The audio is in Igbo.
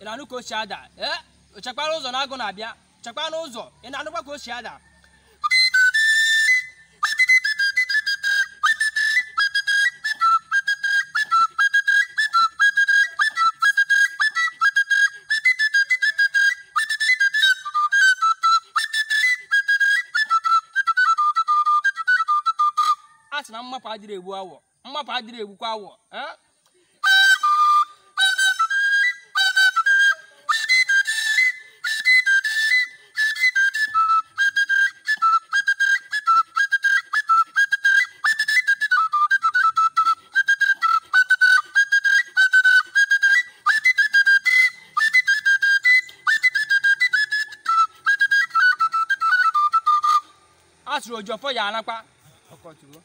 ị na-anụ ka o si ada ee eh, chekwara ụzọ na agụ na-abịa chekwara n'ụzọ ị na-anụkwa ka o si ada a sị na mmapụ adịrị egbu awọ mmapụ adịrị egbukwa awọ eh? asụrụ ojofọ ya anakwa ọkọchukwu